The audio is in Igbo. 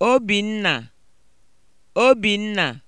Obinna Obinna